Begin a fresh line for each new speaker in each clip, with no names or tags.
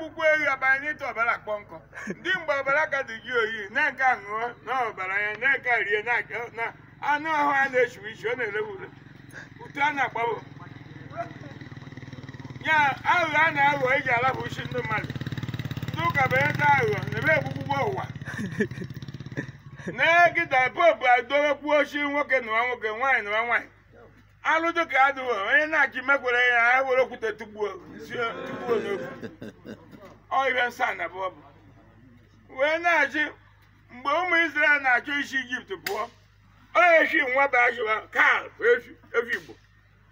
akpụkpọ ehi ọbara n'ịta ọbara akpọ nkọ ndị mgbe ọbara ka dị gị oyi na nke ṅụọ na ọbara ya na nke rie na anụ ahụ a na-echiwe ichi ọ na-ere ure utu a na-agbabụ ya aghụghọ a na-aghọ eji alapụ uchi ndị mmadụ ndị ụka bụ ebe aghụghọ na ebe egbugbugbọ ụwa na-egida popu adowekwuo ochi nwoke nụwa nwoke nwaanyị nụwa nwaanyị alụdo ka adịghị onye na-achị mekwere ya ha were okwute tugbuo n'okwu ọrịa nsa na bọbụ wee na-ajụ mgbe ụmụ Israel na-achọ isi Ijipt pụọ oechi nwa bajụa kal efi Igbo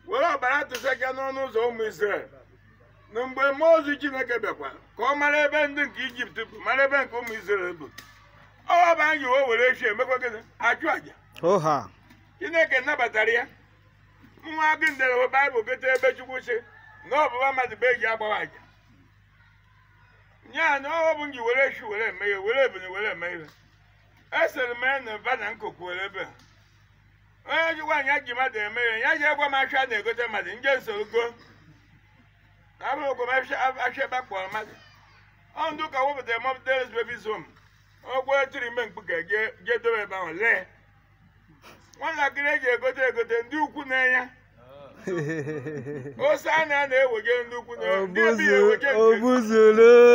were ọbara tụsaga n'ọnụ ụzọ ụmụ Israel na mgbe mmụọ ozi Chineke bịakwa ka ọ mara ebe ndị nke Ijipt bụ mara ebe nke ụmụ Israel bụ ọwaba anyị o were echi emekwa gịnị achụ àjà Chineke nabatara ya nwa agụ ndere Baịbụl gote ebe Chukwu si na ọbụba mmadụ bụ eji agbawa àjà nya na ọ bụ nji were echi were eme ya, were ebili were eme ya. esere m na mba na nkụkụ were ebe onye ji nwaanyị ji mmadụ eme ihe ya ji egwa m ahịa na-egote mmadụ nje go, na abụrụ ogwo m ahịa ebe akpọrọ mmadụ ọ ndụ ka wepụtara mọb deres bebi zom ogwo tiri ime mkpu ka e je dobe ebe ahụ lee nwatakịrị eji egote egote ndị ukwu na-enye ose a na-ewege ndị ukwu na-enye ndị ebe ya ewege nke